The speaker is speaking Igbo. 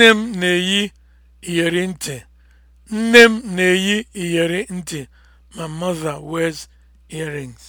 Nne m na-eyi iyeri ntị. Ma m na-eyi mother wears earrings.